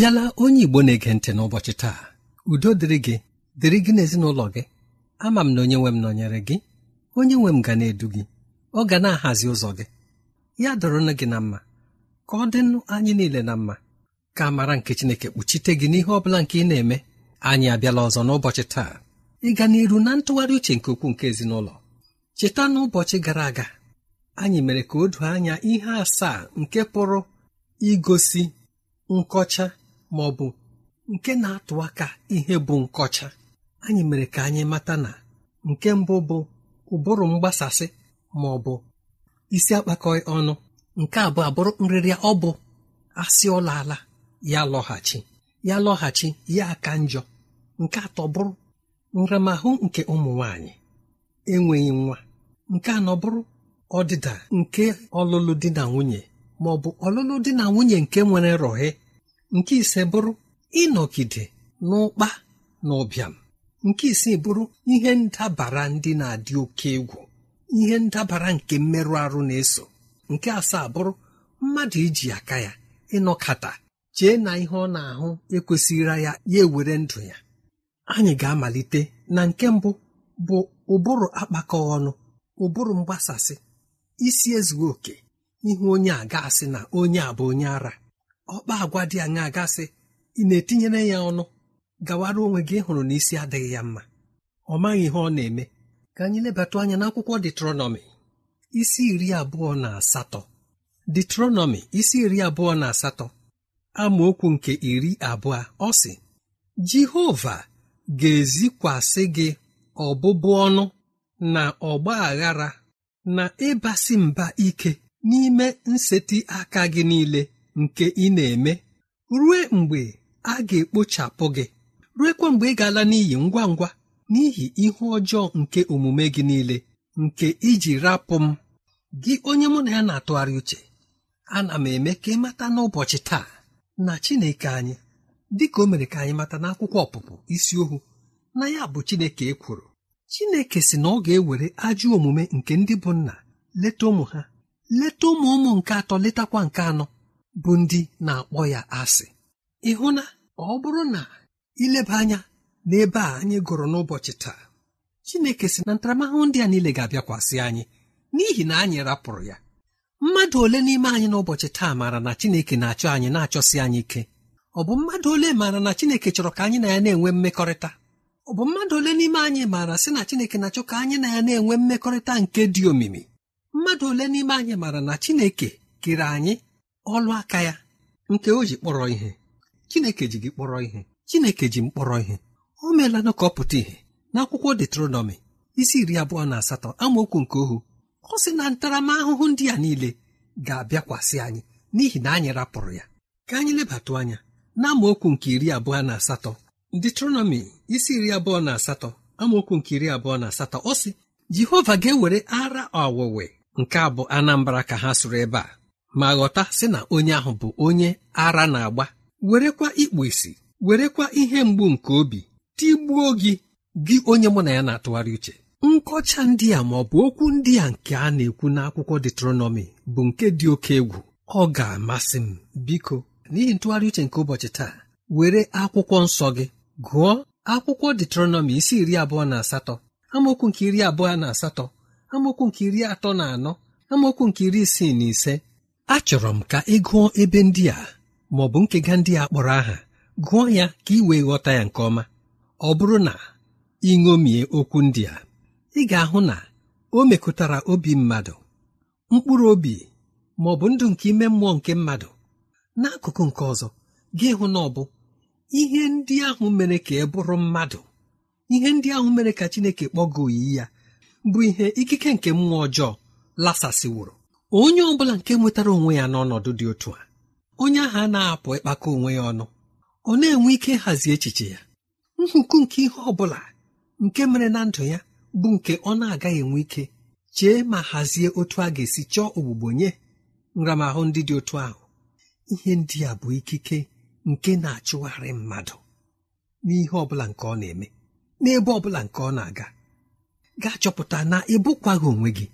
bịala onye Igbo na-ege ntị n'ụbọchị taa udo dịrị gị dịrị gị n'ezinụlọ gị ama m na onye nwe m nọnyere gị onye nwe m ga na-edu gị ọ ga na-ahazi ụzọ gị ya dọrọnụ gị na mma ka ọ dịnụ anyị niile na mma ka amara nke Chineke kpuchite gị n'ihe ọ bụla nke ị na-eme anyị abịala ọzọ n'ụbọchị taa Ị ịga n'iru na ntụgharị uche nke ukwuu nke ezinụlọ cheta n'ụbọchị gara aga anyị mere ka o du anya ihe asaa nke pụrụ igosi nkọcha ma ọ bụ nke na-atụ aka ihe bụ nkọcha anyị mere ka anyị mata na nke mbụ bụ ụbụrụ mgbasasị ma ọ bụ isi akpakọ ọnụ nke abụọ abụrụ nrịrịa ọ bụ asị ọla ala ya lọghachi ya lọghachi ya aka njọ nke atọ bụrụ nramahụ nke ụmụ nwanyị enweghị nwa nke anọ bụrụ ọdịda nke ọlụlụ di na nwunye ma ọ bụ ọlụlụ di na nwunye nke nwere rọhe nke ise bụrụ ịnọgide n'ụkpa na ụbịam nke isii bụrụ ihe ndabara ndị na-adị oke egwu ihe ndabara nke mmerụ arụ na-eso nke asaa bụrụ mmadụ iji aka ya ịnọkata chee na ihe ọ na-ahụ ekwesịrị ya ya ewere ndụ ya anyị ga-amalite na nke mbụ bụ ụbụrụ akpakọ ọnụ ụbụrụ mgbasasị isi ezughị oke ihe onye a ga-asị na onye a bụ onye ara ọkpa agwa dị anya gasị ị na-etinyere ya ọnụ gawara onwe gị hụrụ na isi adịghị ya mma ọ maghị ihe ọ na-eme ka anyị lebata anya n'akwụkwọ detronọmi isi iri abụọ na asatọ detronọmi isi iri abụọ na asatọ amaokwu nke iri abụọ ọ sị jehova ga-ezikwasị gị ọbụbụ ọnụ na ọgba aghara na ịbasị mba ike n'ime nseti aka gị niile nke ị na-eme rue mgbe a ga-ekpochapụ gị ruekwa mgbe ị ga-ala n'iyi ngwa ngwa n'ihi ihu ọjọọ nke omume gị niile nke iji rapụ m gị onye mụ na ya na-atụgharị uche ana m eme ka ị mata n'ụbọchị taa na Chineke anyị dịka o mere ka anyị mata n'akwụkwọ ọpụpụ isi ohu na ya bụ Chineke ekworo Chineke si na ọ ga-ewere ajọ omume nke ndị bụ nna leta ụmụ ha leta ụmụ ụmụ nke atọ letakwa nke anọ bụ ndị na-akpọ ya asị ịhụ na ọ bụrụ na ileba anya n'ebe a anyị gụrụ n'ụbọchị taa Chineke si na ntaramahụhụ ndị a niile ga-abịakwasị anyị n'ihi na anyị rapụrụ ya mmadụ ole n'ime anyị n'ụbọchị taa maara na Chineke na-achọ anyị na-achọsi anyị ike ọ bụ mmadụ ole maara na Chineke chọrọ ka anyị na ya na-enwe mmekọrịta ọ bụ mmadụ ole n'ime anyị maara sị na Chineke na-achọ ka anyị na ya na-enwe mmekọrịta nke dị omimi mmadụ ole n'ime anyị maara na Chineke kere anyị ọlụ aka ya nke o ji kpọrọ ihe chineke ji gị kpọrọ ihe chineke ji m kpọrọ ihe o meela na ka ọ pụta ihe n'akwụkwọ detronọmi isi iri abụọ na asatọ amaokwu nke ohu ọ sị na ntaramahụhụ ndị a niile ga-abịakwasị anyị n'ihi na anyị rapụrụ ya ka anyị lebatụ anya na amaokwu nke iri abụọ na asatọ detronọmi isi iri abụọ na asatọ amaokwu nke iri abụọ na asatọ ọ sị jehova ga-ewere ara ọwụwe nke abụ anambra ka ha sụrụ ebe a ma ghọta sị na onye ahụ bụ onye ara na-agba werekwa ikpu isi werekwa ihe mgbu nke obi tigbuo gị gị onye mụ na ya na-atụgharị uche nkọcha ndị a ma ọ bụ okwu ndị a nke a na-ekwu n'akwụkwọ detronọmi bụ nke dị oke egwu ọ ga-amasị m biko n'ihi ntụgharị uche nke ụbọchị taa were akwụkwọ nsọ gị gụọ akwụkwọ detronọmi isi iri abụọ na asatọ amaokwu nke iri abụọ na asatọ amaokwu nke iri atọ na anọ amaokwu nke iri isii na ise achọrọ m ka ị gụọ ebe ndị a ma ọ bụ nkega ndị a kpọrọ aha gụọ ya ka ị wee ghọta ya nke ọma ọ bụrụ na ị ṅomie okwu ndị a ị ga-ahụ na o mekụtara obi mmadụ mkpụrụ obi ma ọ bụ ndụ nke ime mmụọ nke mmadụ n'akụkụ nke ọzọ gị hụ na ọ bụ ihe ndị ahụ mere ka ị bụrụ mmadụ ihe ndị ahụ mere ka Chineke kpọgoo oyi ya bụ ihe ikike nke mmụọ ọjọọ lasasịwụrụ onye ọ bụla nke nwetara onwe ya n'ọnọdụ dị otu a onye ahụ na-apụ ịkpakọ onwe ya ọnụ ọ na-enwe ike ịhazi echiche ya nhụkụ nke ihe ọ bụla nke mere na ndụ ya bụ nke ọ na-agaghị enwe ike chee ma hazie otu a ga-esi chọọ ogbugbo nye nramahụ ndị dị otu ahụ ihe ndị a bụ ikike nke na-achụgharị mmadụ n'ihe ọ bụla nke ọ na-eme n'ebe ọ bụla nke ọ na-aga gaa chọpụta na ịbụkwaghị onwe gị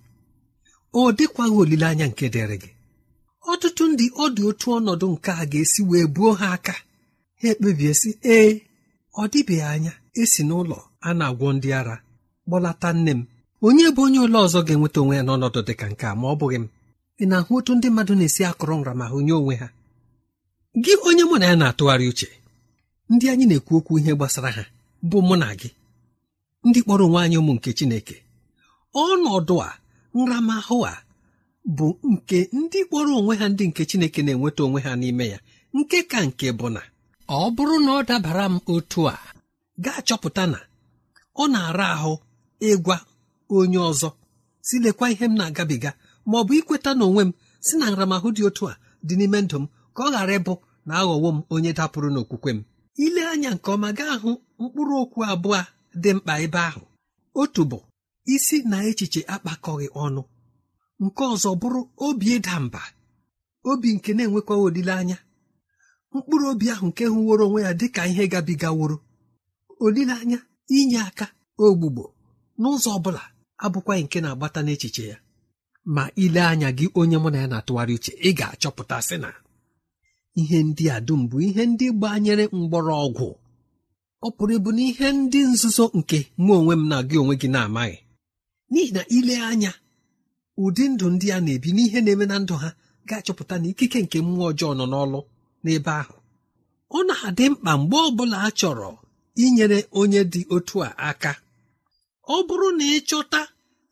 o dịkwaghị olileanya nke dịrị gị ọtụtụ ndị ọ dị otu ọnọdụ nke a ga-esi wee buo ha aka ha ekpebie sị ee ọ dịbeghị anya esi n'ụlọ a na-agwọ ndị ara kpọlata nne m onye bụ onye ụlọ ọzọ ga-enweta onwe ya n'ọnọdụ dị ka nke a ma ọ bụghị m ị na-ahụ otu ndị mmadụ na-esi akọrọ hụ nye onwe ha gị onye mụ na ya na-atụgharị uche ndị anyị na-ekwu okwu ihe gbasara ha bụ mụ na gị ndị kpọrọ onwe anyị ụmụ nke Chineke ọnọdụ a nramahụ a bụ nke ndị kpọrọ onwe ha ndị nke chineke na-enweta onwe ha n'ime ya nke ka nke bụ na ọ bụrụ na ọ dabara m otu a gaa chọpụta na ọ na-ara ahụ ịgwa onye ọzọ si lekwa ihe m na-agabiga ma ọ bụ ikweta na onwe m si na nramahụ dị otu a dị n'ime ndụ m ka ọ ghara ịbụ na aghọwo m onye dapụrụ n'okwukwe m ile anya nke ọma gaa hụ mkpụrụ okwu abụọ dị mkpa ebe ahụ otu bụ isi na echiche akpakọghị ọnụ nke ọzọ bụrụ obi ịda mba obi nke na-enwekwaghị olileanya mkpụrụ obi ahụ nke hụworo onwe ya dị ka ihe gabigaworo olileanya inye aka ogbugbo n'ụzọ ọ bụla abụkwaghị nke na-agbata n'echiche ya ma ile anya gị onye mụ na ya na-atụgharị uche ị ga-achọpụta sị na ihe ndị a dum bụ ihe ndị gbanyere mgbọrọgwụ ọ pụrụ ịbụ na ihe ndị nzuzo nke mụ onwe m na gị onwe gị na-amaghị n'ihi na ile anya ụdị ndụ ndị a na-ebi n'ihe na-eme na ndụ ha ga-achọpụta na ikike nke mmụọ ọjọọ nọ n'ọlụ n'ebe ahụ ọ na-adị mkpa mgbe ọ bụla a chọrọ inyere onye dị otu a aka ọ bụrụ na ịchọta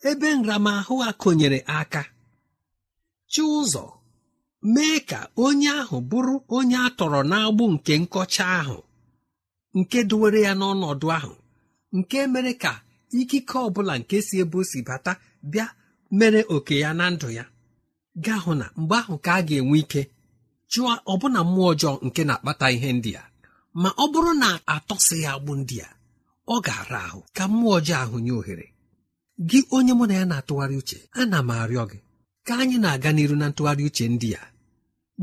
ebe nramahụ a konyere aka chi ụzọ mee ka onye ahụ bụrụ onye a tọrọ n'agbụ nke nkọcha ahụ nke duwere ya n'ọnọdụ ahụ nke mere ka ikike ọ bụla nke si ebe o si bata bịa mere oke ya na ndụ ya gaa hụ na mgbe ahụ ka a ga-enwe ike chụọ ọbụna mmụọ ọjọọ nke na-akpata ihe ndị a ma ọ bụrụ na atọsị ya agbụ ndị a ọ ga-ara ahụ ka mmụọ ọjọọ ahụ nye ohere gị onye mụ na ya na-atụgharị uche ana m arịọ gị ka anyị na-aga n'iru na ntụgharị uche ndị a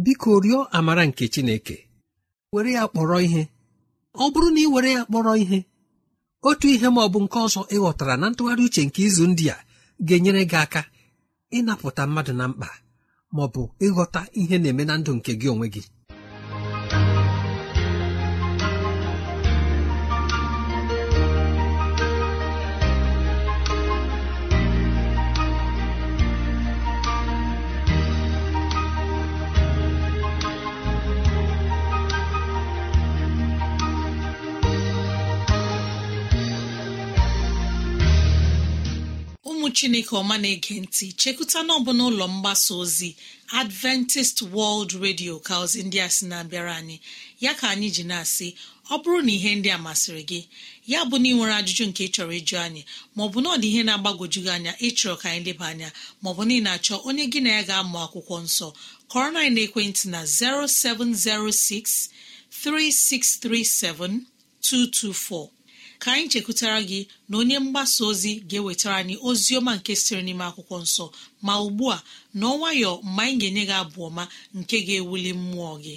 biko rịọ amara nke Chineke were ya kpọrọ ihe ọ bụrụ na ị were ya kpọrọ ihe otu ihe ma ọ bụ nke ọzọ ịghọtara na ntụgharị uche nke izu ndị a ga-enyere gị aka ịnapụta mmadụ na mkpa ma bụ ịghọta ihe na-eme na ndụ nke gị onwe gị ụmụ chineke ọma na-ege ntị chekụta n'ọbụ n'ụlọ mgbasa ozi adventist world radio ka ozi ndị a sị na-abịara anyị ya ka anyị ji na-asị ọ bụrụ na ihe ndị a masịrị gị ya bụ na ị nwere ajụjụ nke ị chọrọ ịjụ anyị maọbụ na ọ ihe na-agbagwoju gị anya ịchọrọ ka anyị leba anya maọbụ na ị na-achọ onye gị na ya ga-amụ akwụkwọ nsọ kọrọ na ekwentị na 0706 ka anyị chekwutara gị na onye mgbasa ozi ga-ewetara anyị ozi ọma nke sịrị n'ime akwụkwọ nsọ ma ugbu a n'ọnwayọ mgbe anyị ga-enye gị abụ ọma nke ga-ewuli mmụọ gị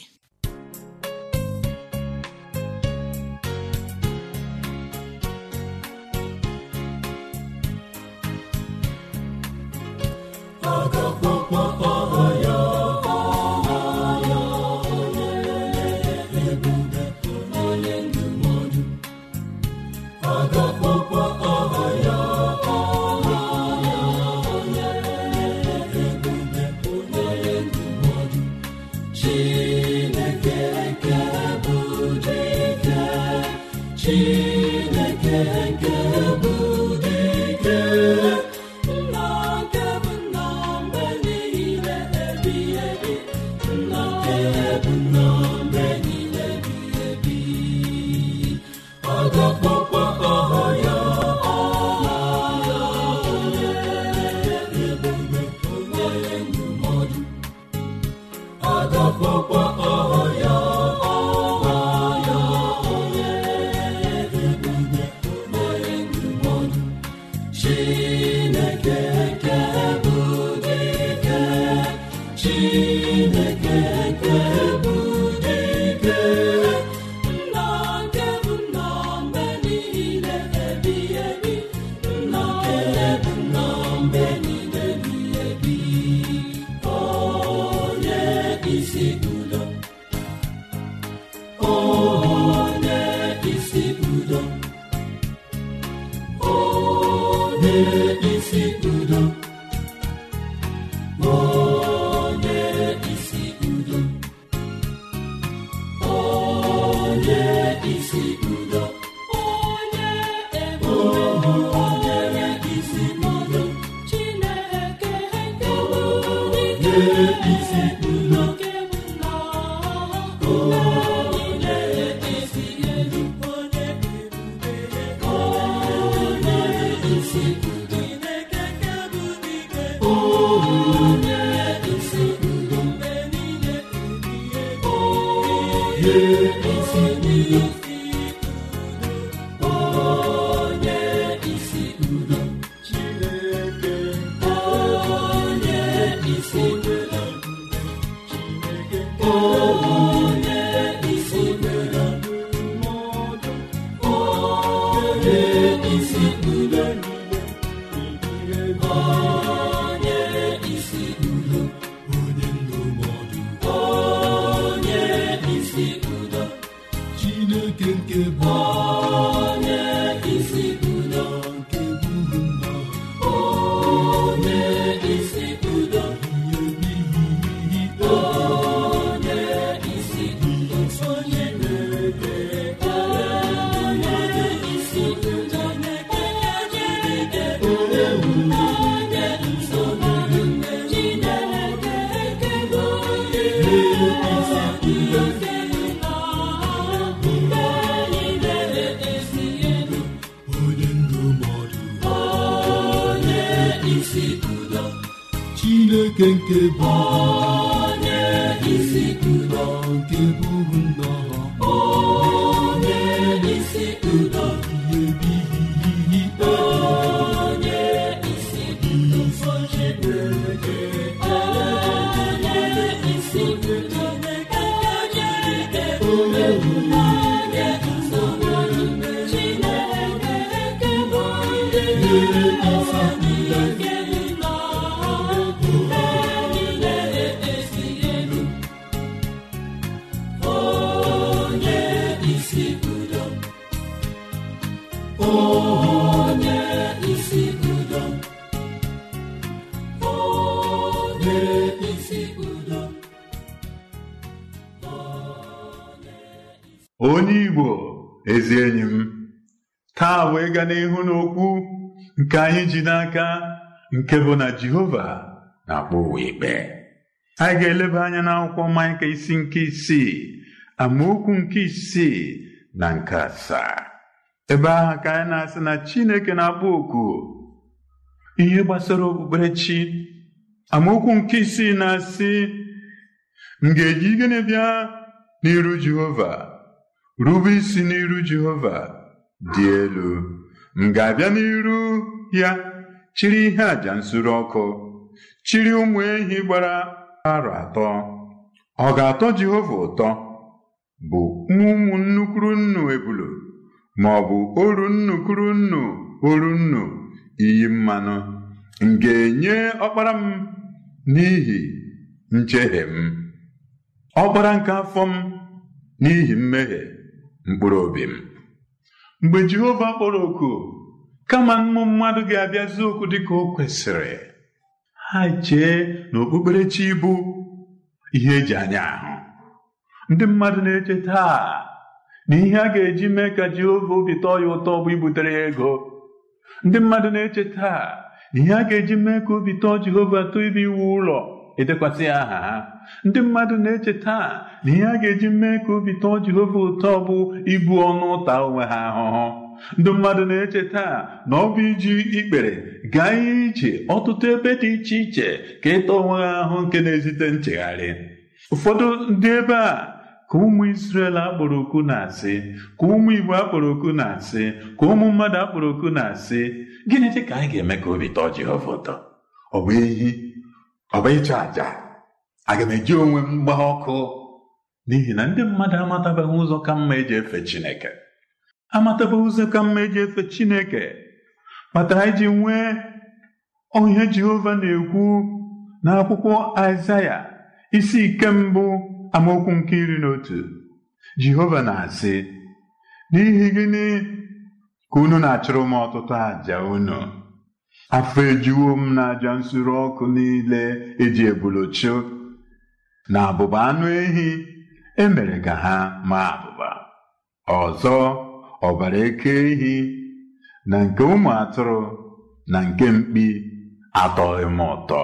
Kenke nke bụ onye isi nke bụrụ nnọọ onye isi udo ihe onye isi udo nsọ Chineke onye isi onye onye bụ onye isi udo n'okwu nke anyị ji n'aka nke bụ na Jehova na-akpọ ụwa ikpe anyị ga-eleba anya n'akwụkwọ Maịka isi nke isii amaokwu nke isii na nke asaa ebe ahụ ka anyị na-asị na Chineke na-akpọ oku ihe gbasara okpukperechi amaokwu nke isii na-asị m ga-eji gịnị bịa n'iru Jehova rube isi n'iru Jehova dị elu m ga-abịa n'iru ya chiri ihe àjà nsuru ọkụ chiri ụmụ ehi gbara arọ atọ ọ ga-atọ Jehova ụtọ bụ ụmụ nnukwu nnu ebulu, ma ọ bụ oru nnukwu nnu oru nnu iyi mmanụ m ga-enye ọkpara m n'ihi njehie m ọkpara nke afọ m n'ihi mmehie mkpụrụ obi m mgbe Jehova kpọrọ oku kama mmụ mmadụ ga-abịazi okwu dịka o kwesịrị ha chee na okpukperechi bụ ihe eji anya ahụ ndị mmadụ na-eche taa na ihe a ga-eji mee ka Jehova obi tọọ ya ụtọ bụ ibutere ya ego ndị mmadụ na-eche taa na ihe a ga-eji mee ka obi tọọ Jehova tọọ ibe iwu ụlọ edekwasị aha ha ndị mmadụ na-eche taa na ihe a ga-eji mee ka obi tọọ Jehova ụtọ bụ ibu ọnụ ụta onwe ha ahụhụ ndị mmadụ na-eche taa na ọ bụ iji ikpere gaa ihe ije ọtụtụ ebe dị iche iche ka ịta onwe ha ahụ nke na-ezite nchegharị ụfọdụ ndị ebe a ka ụmụ Israel akpọrọ okwu na-asị ka ụmụ Igbo akpọrọ okwu na-asị ka ụmụ mmadụ akpọrọ okwu na-asị gịnị dị ka anyị ga-eme ka obi tọọ Jehova ụtọ ọ bụ ehi ọ bụ ịchụ àjà aga m eji onwe m gbaa ọkụ n'ihi na ndị mmadụ amatabeghị ụzọ ka mma eji efe Chineke amatabeghị ụzọ ka mma eji efe Chineke kpatara iji nwee onye Jehova na-ekwu n'akwụkwọ Aịzaya isi ike mbụ amaokwu nke iri na otu Jehova na-asị n'ihi gịnị ka unu na-achụrụ m ọtụtụ àjà unu afọ ejuwo m na aja nsure ọkụ niile eji ebuluchu na abụba anụ ehi emere ka ha maa abụba ọzọ ọbara eke ehi na nke ụmụ atụrụ na nke mkpi atọghị m ụtọ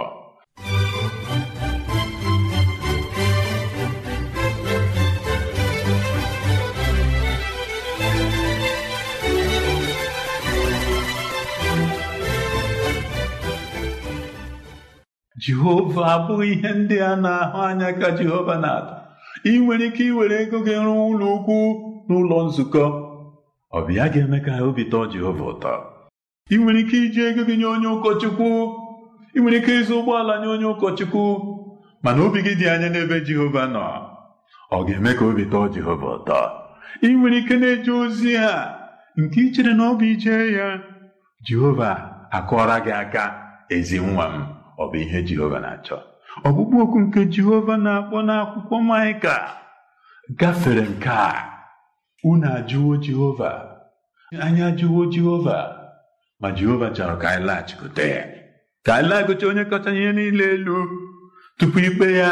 jehova abụghị ihe ndị a na-ahụ anya ka jehova na-atọ ị nwere ike iwere ego gị rụọ ụlọ ukwu n'ụlọ nzukọ ọ ga-eme ka obi tọọ jehova ụtọ ị nwere ike iji ego gị nye onye ụkọchukwu ị nwere ike ịzụ ụgbọala nye onye ụkọchukwu mana obi gị dị anya n'ebe jehova nọ ọ ga-eme ka obi tọọ jehova ụtọ ị nwere ike na-eje ozi ha nke ichere na ọ bụ ije ya jehova akọọra gị aka ezi nwa m ọ bụ ihe Jehova na-achọ ọkpụkpụ oku nke Jehova na-akpọ n'akwụkwọ Maịka gafere nke a unu ajụwo Jehova anyị ajụwo Jehova ma Jehova chọrọ ka anyị laghachikwute ya ka anyị laghachikwute onye kọcha ihe niile elu tupu ikpe ya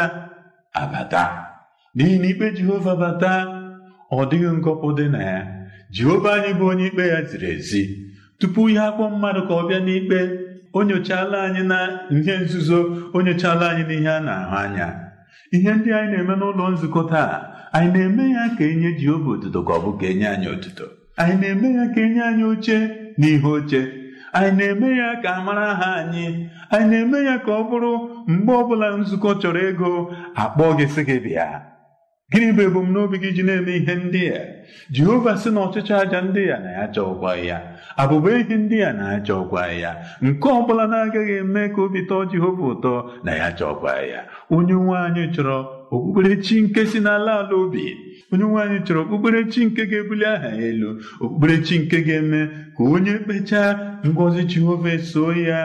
abata n'ihi na ikpe Jehova bata ọ dịghị ngọpụ dị na ya Jehova anyị bụ onye ikpe ya ziri ezi tupu ya akpọ mmadụ ka ọ bịa n'ikpe o nyochala anyị na ihe nzuzo o nyochala anyị n'ihe a na-ahụ anya ihe ndị anyị na-eme n'ụlọ nzukọ taa anyị na-eme ya ka enye Jehova otuto ka ọ bụ ka enye anyị otuto anyị na-eme ya ka enye anyị oche na ihe oche anyị na-eme ya ka a mara aha anyị anyị na-eme ya ka ọ bụrụ mgbe ọbụla nzukọ chọrọ ego akpọ gị sị gị bịa gịnị bụ ebumnobi gị ji na-eme ihe ndị a jehova sị na ọchịchị aja ndị a na ya ụgwọ ya abụba ihe ndị a na-aja ụgwọ ya nke ọ bụla na-agaghị eme ka obi tọọ jehova ụtọ na ya aja ya onye nwe anyị chọrọ okpukperechi nke si n'ala ala obi onye nwe anyị chọrọ okpukperechi nke ga-ebuli aha ya elu okpukperechi nke ga-eme ka onye kpechaa ngọzi jehova soo ya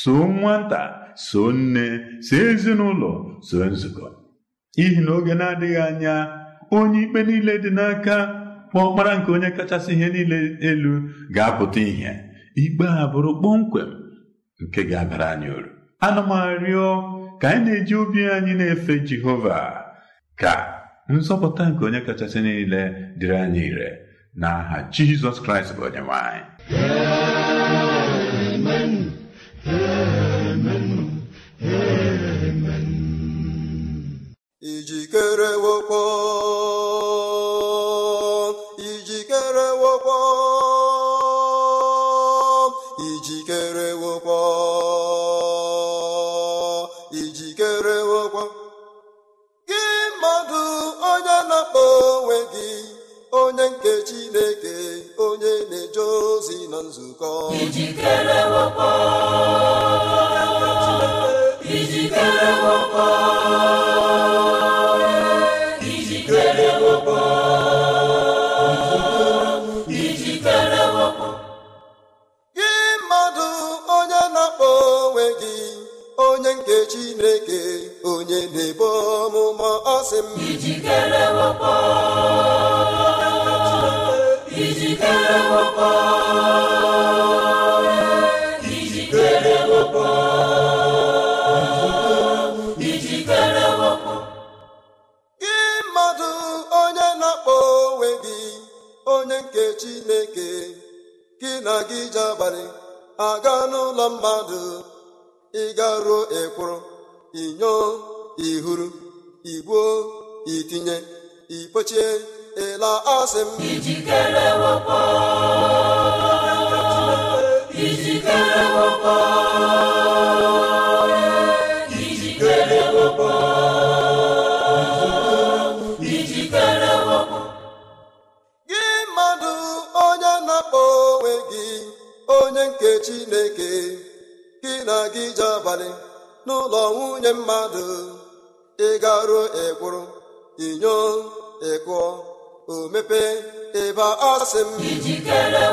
soo nwata soo nne so ezinụlọ so nzukọ n'ihi na oge na-adịghị anya onye ikpe niile dị n'aka ọ ọkpara nke onye kachasị ihe niile elu ga-apụta ihe ikpe a bụrụ kpọmkwem nke ga-abara anyị uru ana m ka anyị na-eji obi anyị na-efe Jehova ka nzọpụta nke onye kachasị niile dịrị anyị ire n'aha Jizọs Kraịst bụ onye ọmụmụ ọ m ijikere ijikere ijikere ijikere gị mmadụ onye na-akpọ onwe gị onye nke Chineke gị na gị ji abalị aga n'ụlọ mmadụ ịgaruo ekworo inyo ihuru igbuo itinye ikpochie ịla asị m ijikere ijikere gị mmadụ onye na-akpọ onwe gị onye nke Chineke gị na gị je abalị n'ụlọ nwunye mmadụ ịgaruo ekwuru inyo ịkụọ o mepee ịba ọsị m ijikere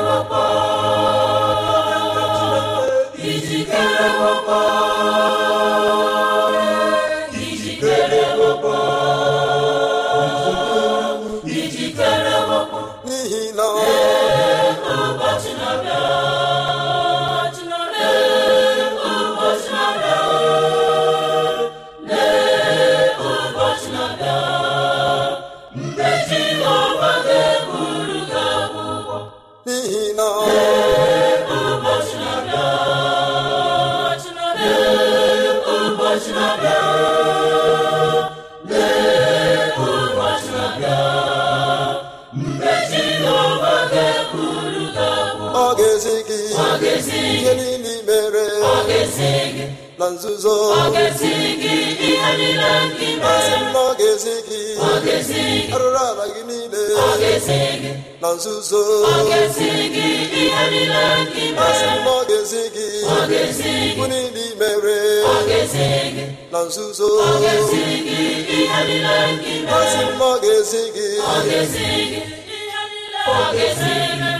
ijikere ga gị ihe niile imere na nzuzo asị m na ọ ga-ezi gị arụrụ ala gị niile na nzuzo asị m na ọ ga-ezi gị bụ niile na nzuzo asị m na ọ ga-ezi gị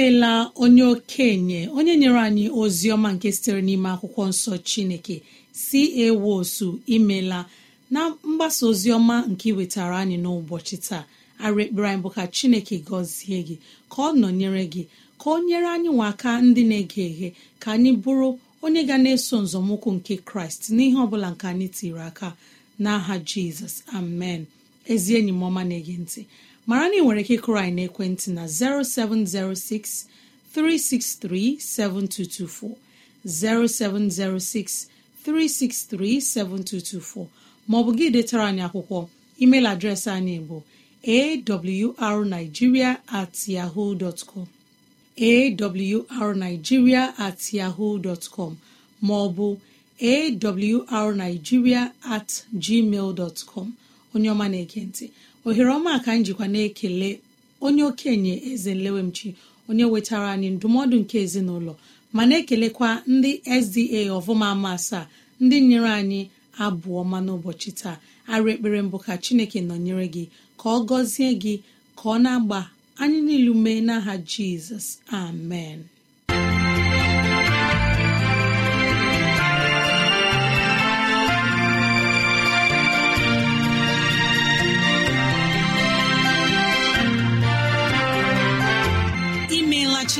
imela onye okenye onye nyere anyị ozi ọma nke sitere n'ime akwụkwọ nsọ chineke si ewosu imela na mgbasa ozi ọma nke iwetara anyị n'ụbọchị taa arekpere anyị bụ ka chineke gọzie gị ka ọ nọnyere gị ka ọ nyere anyị nwa aka ndị na-ege eghe ka anyị bụrụ onye ga na-eso nzọmụkwụ nke kraịst n'ihe ọ bụla nke anyị tiri aka n'aha jizọs amen ezi enyi m ọma na-ege ntị mara na ị nwere ike ịkụrụ anyị n'ekwentị na 0706 363 7224 0706 363 7224 maọbụ gị detara anyị akwụkwọ email adreesị anyị bụ awrnigeria at yahoo awrnigeria at yahoo dot com maọbụ awrnigeria at gmail dot com onye ọma na-ekentị ohere ọma ka njikwa jikwa na-ekele onye okenye eze nlewemchi onye wetara anyị ndụmọdụ nke ezinụlọ ma na-ekelekwa ndị sda ọvụma ama asaa ndị nyere anyị abụọ ma n'ụbọchị taa arụ ekpere mbụ ka chineke nọnyere gị ka ọ gọzie gị ka ọ na-agba anyị mee n'aha jizọs amen